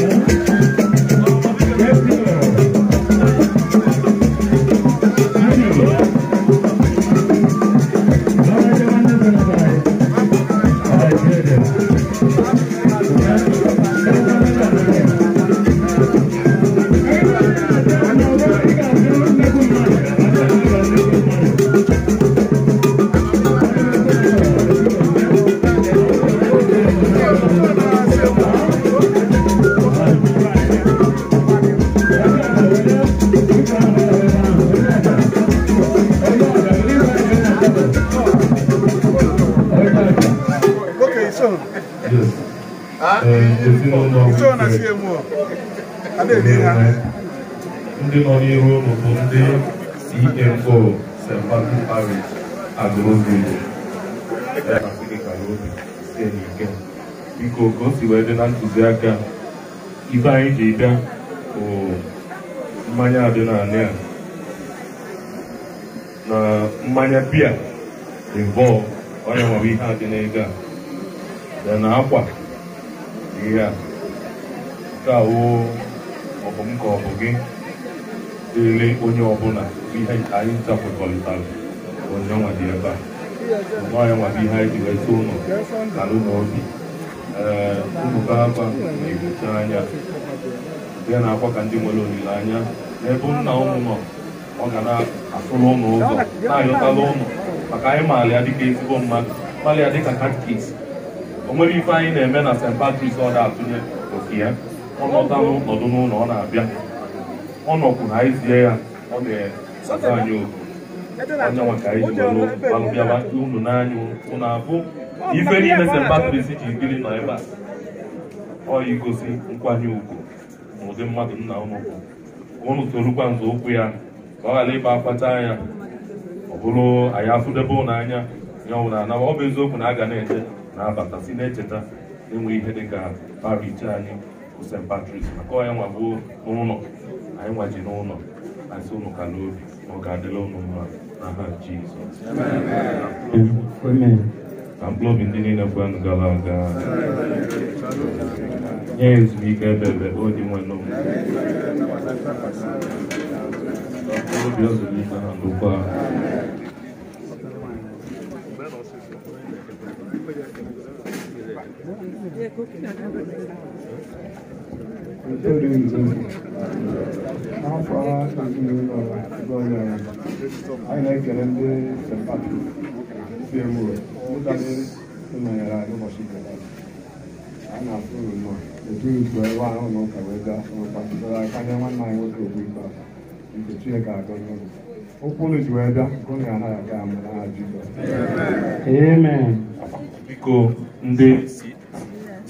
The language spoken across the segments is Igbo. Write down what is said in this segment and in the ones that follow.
Thank you. ndị nọ n'ihu ụmụ bụ ndị CMO e St. Patrick Parish Agroville biko ka o si wee dị na ntụziaka ibe anyị ji bịa bụ mmanya dị n'ala a na mmanya bia involve onye nwere ihe adị a na akwa ya awụ ọbụ m ka ọ bụ gị dịrị onye ọbụla ihe anyị zapụtalitara onyenwa dị ebe a nyanwa bụ ihe anyị ji weta ụlọ ala ụlọ obi ee mbụba aba na-egbucha anya ya na-akwa ka ndị nwere olileanya n'ebe nna ụnụ nọ ọ ga na-asụrụ ụnụ ụzọ na-ayọtala ụnụ maka anyị maara ya dịka mmadụ maara dịka katkis o nwere ife anyị na-eme na St. Patrick's ọ da-atụnye oke ya ọ nọtanụ n'ụkọdụ n'ụlọ ọ na-abịa ọ nọkwuru anyị zie ya ọ na-ata anyị oku anya maka anyị jiwere alụbịaba unu n'anya unu abụ ife niile se mbatịrịsị ji ikiri nọ ebe a ọ igosi nkwanye ugwu na ụdị mmadụ nna unu bụ ụnụ torukwa nzọ ụkwụ ya ka ọ ghara ịba akpata anya ọ bụrụ anyị afụdebe ụlọ anya ya ọ na anaba ọ bụ eziokwu na a ga na-eche na abata si na-echeta enwe enweghị ihe dị ka anyị bụ St. Patrick maka onye nwa gbuo n'ụlọ anyị nwaji n'ụlọ asị ụnụ ka n'obi na ọ ga-adịla ụmụ mma n'aha Jizọs ka obi ndị niile kwenụ gara aga nye ebe ebe o onye nwe n'obi mkpụrụobi ọ zụrụ ike ha ndụkwa Thank you. n'afọ anyị na-ekele ndị sepati ụbọchị a na-atụ uru ahụ na ụka wee gaa n'ụkpa anyị nwoke nke biko ndị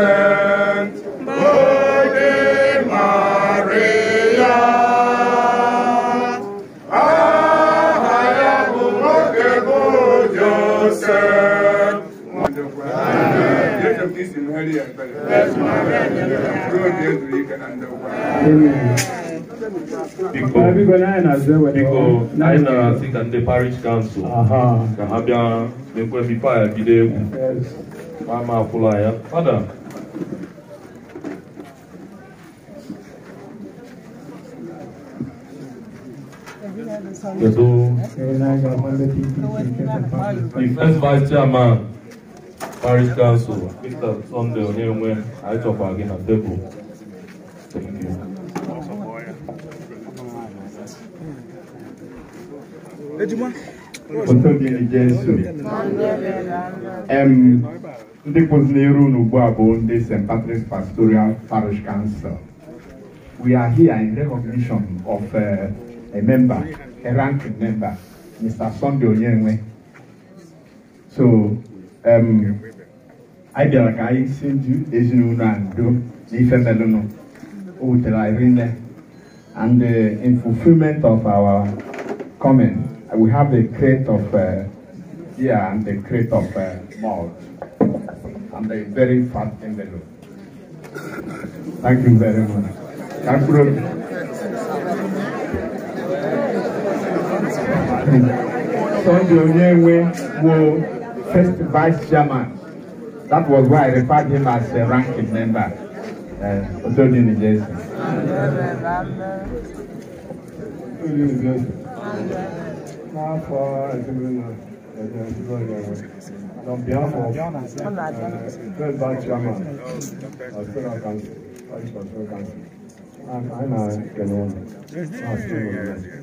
Saint Virgin Maria. anyị nara sị ka ndị parish kansụl ka ha bịa n'ekwe the first vice chairman parish council mr sunday onyenwe aichọkwa gị na tebụl thank you. Foto dị n'Ijensu. Ndị kwụsịrị iru n'ugbu a bụ ndị St. Patrick's Pastoral Parish Council. We are here in recognition of uh, a member a ranking member, Mr. Sunday Onyenwe. So, um, I feel like I send you Ezinu and do Nifemelono, Utelarine, and uh, in fulfillment of our comment, we have the crate of uh, yeah and the crate of uh, malt and a very fat envelope. Thank you very much. Thank you. Secretary Sunday Onyenwe Wo, first vice chairman. That was why I referred him as a ranking member. Uh, Otodini Jason. Uh, On behalf of uh, vice chairman of Federal Council, Vice Control Council, I'm, I'm a Kenyan. I'm a Kenyan.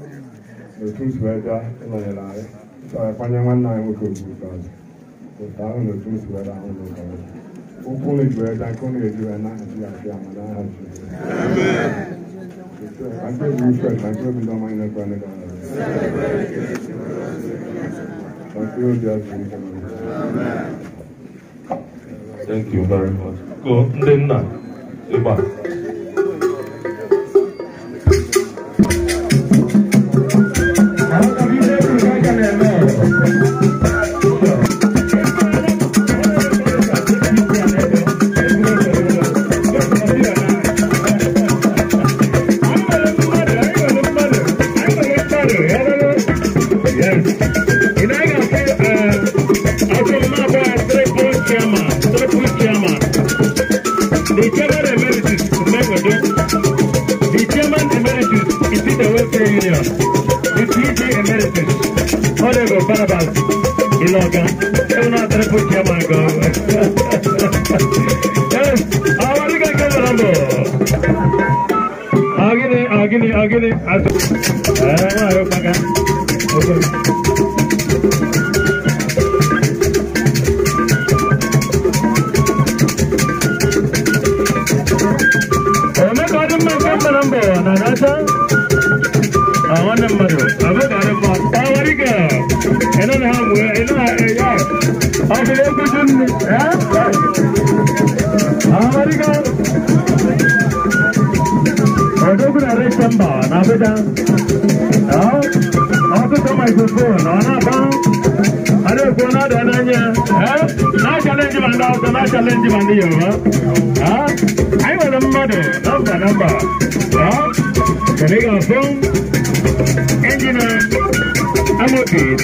là n'ụtụtụ ẹja ịnọnyere anyị kwanye nwanne anyị nwoke ogbugo ọzọ otu ahụ n'ụtụtụ ẹja ahụ n'ụlọ ọzọ ụkwụ unu juru ẹja nke unu ejiwe na Naịjirịa fi ama n'aha Jizọs ma nke bụ uche ma nke bụ ndị ọma anyị na-ekwe ndị gara ma nke obi azụ nke Thank you very much. Go, ndị nna, ịgba. Lagos from Engineer okay.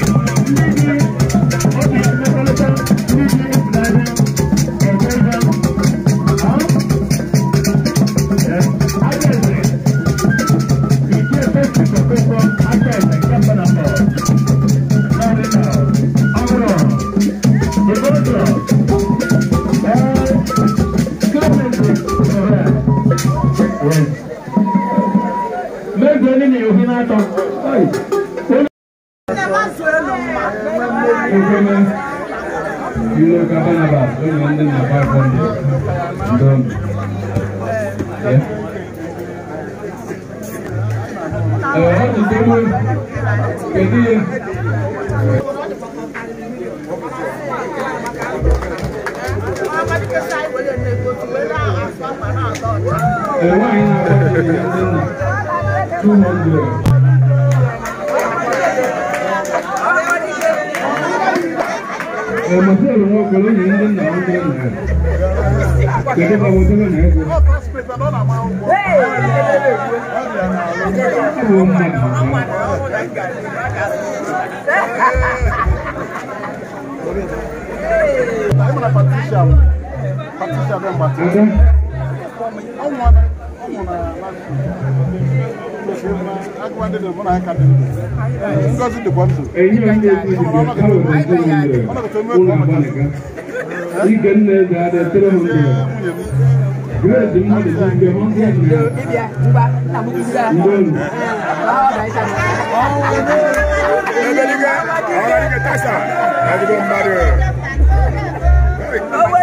200. Ọmọdé ló ń kọ lónìí ń dín náà ń dín náà. Kẹ̀kẹ́ bá wọlé lónìí ẹ̀ kọ́. Ṣé wọ́n mọ̀ nìyí? Ṣé wọ́n mọ̀ nìyí? sisabe mgbata ọnwụ na agụba ndị dị mụ na ya ka dị ndụ ngozi dịkwa ndụ ọnọdụ eme ka ọ mụta ndị nne ga-adịtere m ndụ Grace mú lè fi gbẹ mọ́ díẹ̀ nìyà. Débi ẹ̀ nígbà tàbí kí n gbà. Ndóòlù. Báwo bẹ̀rẹ̀ sàmì. Ọ̀hún ẹgbẹ́ nígbà ọ̀rọ̀ nígbà tásà láti bọ̀ mmadù. Owó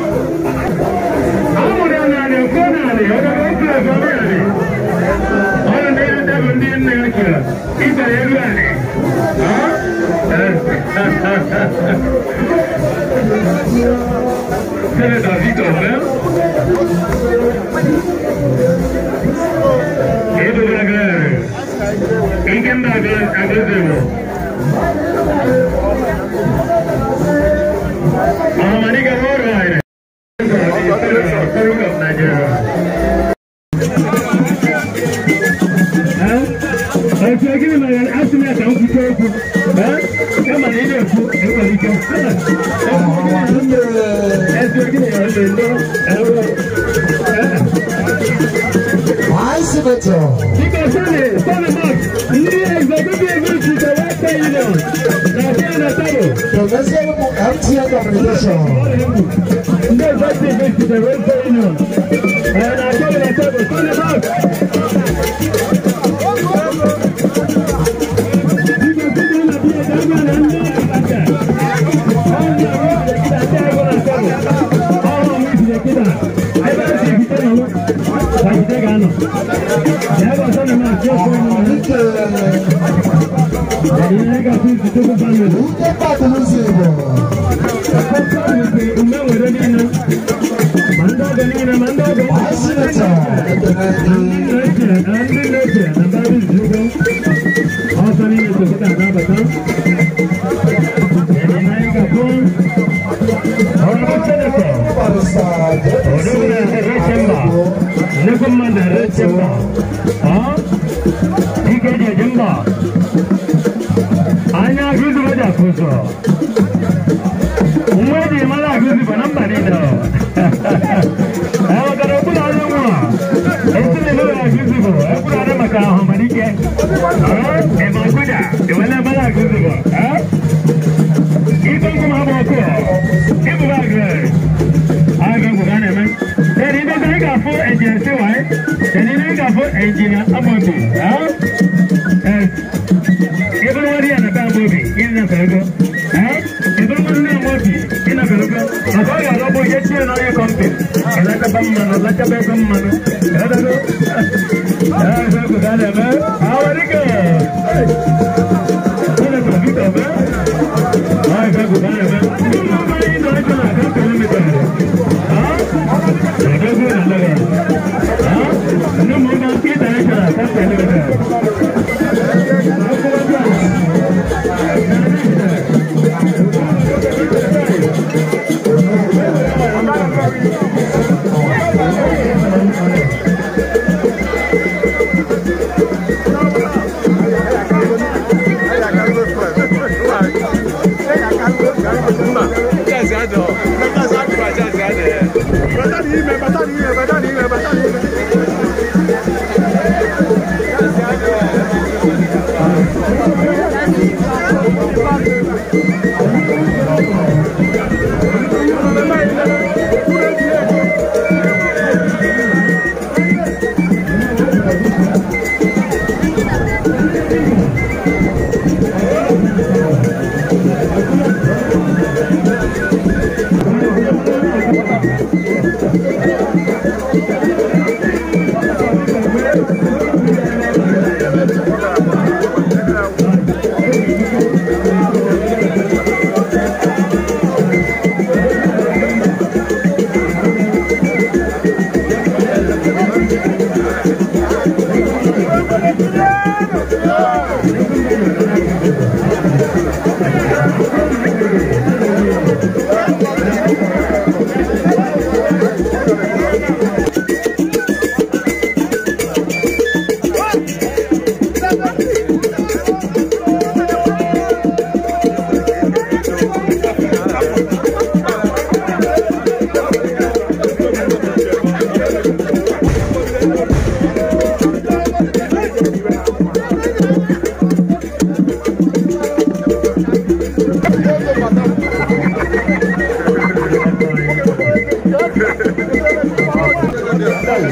ಹೇಳಿದೆ ಯಾರಾಗ್ತದೆ ಸ್ವಾಮಿ ಹೇಳಿ ಅವರ ನೈವೇದ್ಯ ಬಂದಿಯನ್ನು ಹೇಳ್ತೀರ ಈ ತರ ಹೇಳಿ ಸರಿ ದಾಸಿ ತೋರೆ ಏಳು ಏಕೆಂದ್ರೆ ಆಗಲಿದ್ದೇವೆ Because Sunday, Sunday Mark, new executive which is the White Union, Nadia Natalo. Professor MTN Communication. New executive do is the White Union, Nadia Natalo. Sunday Mark. Thank you. gịnị ¿Qué no no ¿Qué no ¿Qué no ¿Qué no ¿Qué no no ¿Qué no ¿Qué no ¿Qué no Yeah, that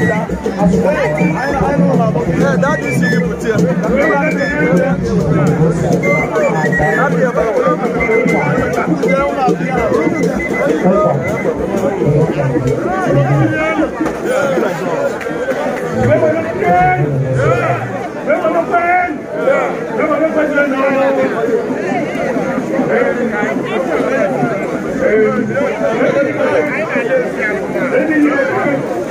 is you put here. Thank you.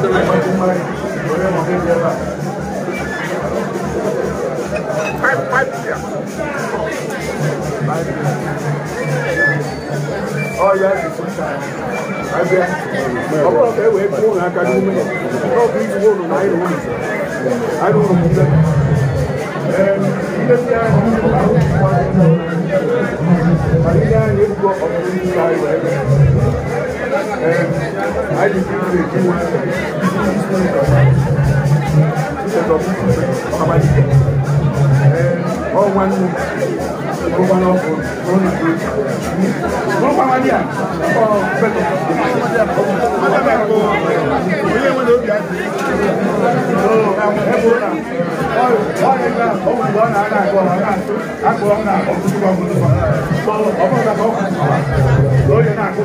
Oh yeah, it's sometimes. Abia, ọmọ ọ̀fẹ́ wẹ̀ fún òun akadu mú yẹ, náà fi ìdúró òun náà yẹ òun sọ, àdó òun mú bẹ́ẹ̀. Ẹ̀ẹ́d ilé bí a ní àwọn ìfọwọ́ àti ìgbà yẹn gbọ́ ọ̀fẹ́ ní ìgbà yẹn. Lórí náà kó.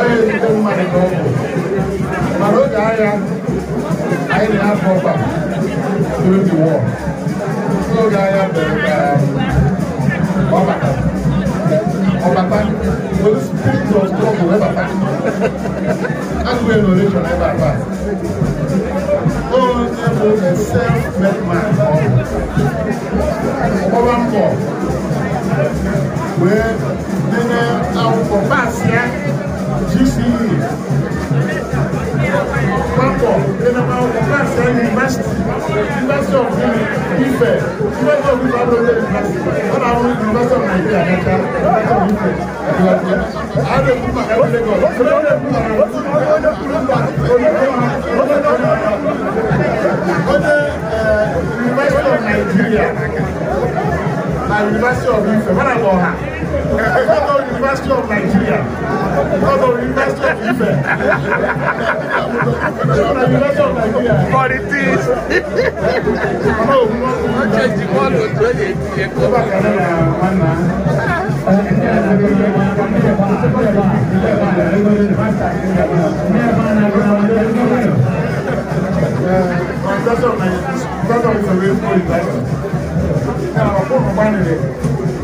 onye ezute mmadụ ka ọ bụ mana oge agha anyị na-afọ ọba during the war n'oge agha mere ka ọbata ọbata those spirit of trouble wee bata agụụ enolation ebe a taa onye bụ a self-made man ọgbaba mbọ wee dene akwụkwọ paasị ya papọ̀ ẹnìmọ̀ ọ̀gá àṣẹ yunifásitì yunifásitì of Ifẹ̀ yunifásitì of Ifẹ̀ abúlé yunifásitì ọ̀nà àwọn yunifásitì of Nàìjíríà kẹta of Ifẹ̀ ìwàdìyà àádọ́ kúmà ẹ̀rọ lẹ́gọ̀ ọ̀dọ́ kúmà ẹ̀rọ kúmà ọ̀dọ́ kúmà ọ̀dọ́ yunifásitì of Nàìjíríà na yunifásitì of Ifẹ̀ mọ́nà lọ́ha ẹ̀fọ́ University of Nigeria, not the University of Ife. the University of Nigeria. But it is. No, not just the one who told it. That's what that's what it's a real story, right? Now, I'm going to find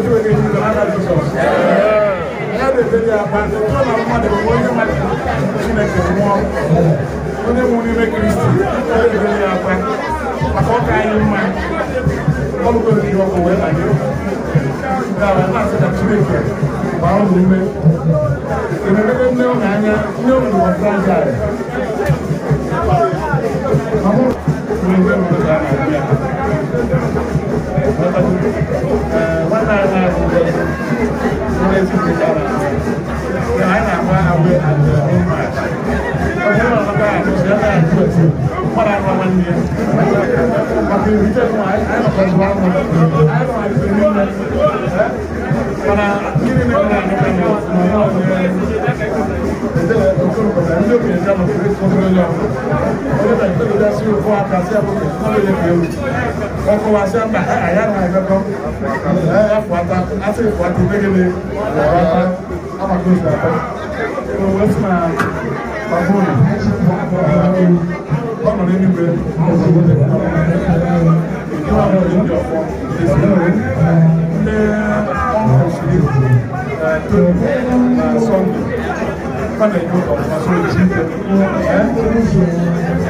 ojú oge ní ìjọba náà jù sọ. Ya bèbè di abalị, otu ọ na-amụ mmadụ bụ onye mmadụ Chineke nwụọ. Onye nwụrụ n'ime Kristi, ya bèbè di akwa. Maka ọka anyị mma, ọ bụgo dị ọkụ wee banye. Nke a na-asị na Chineke gbaa ụlọ ume. Ememede nne ụlọ anya, nne ụlọ ọzọ aja. Ọ bụrụ na ụlọ ebe ụlọ Let's put it down. So I am one away at the home match. But you know, I'm what I want one year. But the reason why I am from one one, I don't have to do that. But I'm ọkọ wa ṣe àgbà àyàrá ẹgbẹkọ ẹfọ ata àti ẹfọ ata gbẹgẹlẹ ẹfọ ata amadu ìgbàgbọ tó wọ́n ti máa pàbó ọmọ rẹ nígbẹ ìdí wà lórí ìdí ọkọ ìdí rẹ ní ọmọ òṣèré tó ní sọndé kọ́nà ìlú ọ̀pọ̀ àti ìjì ẹ̀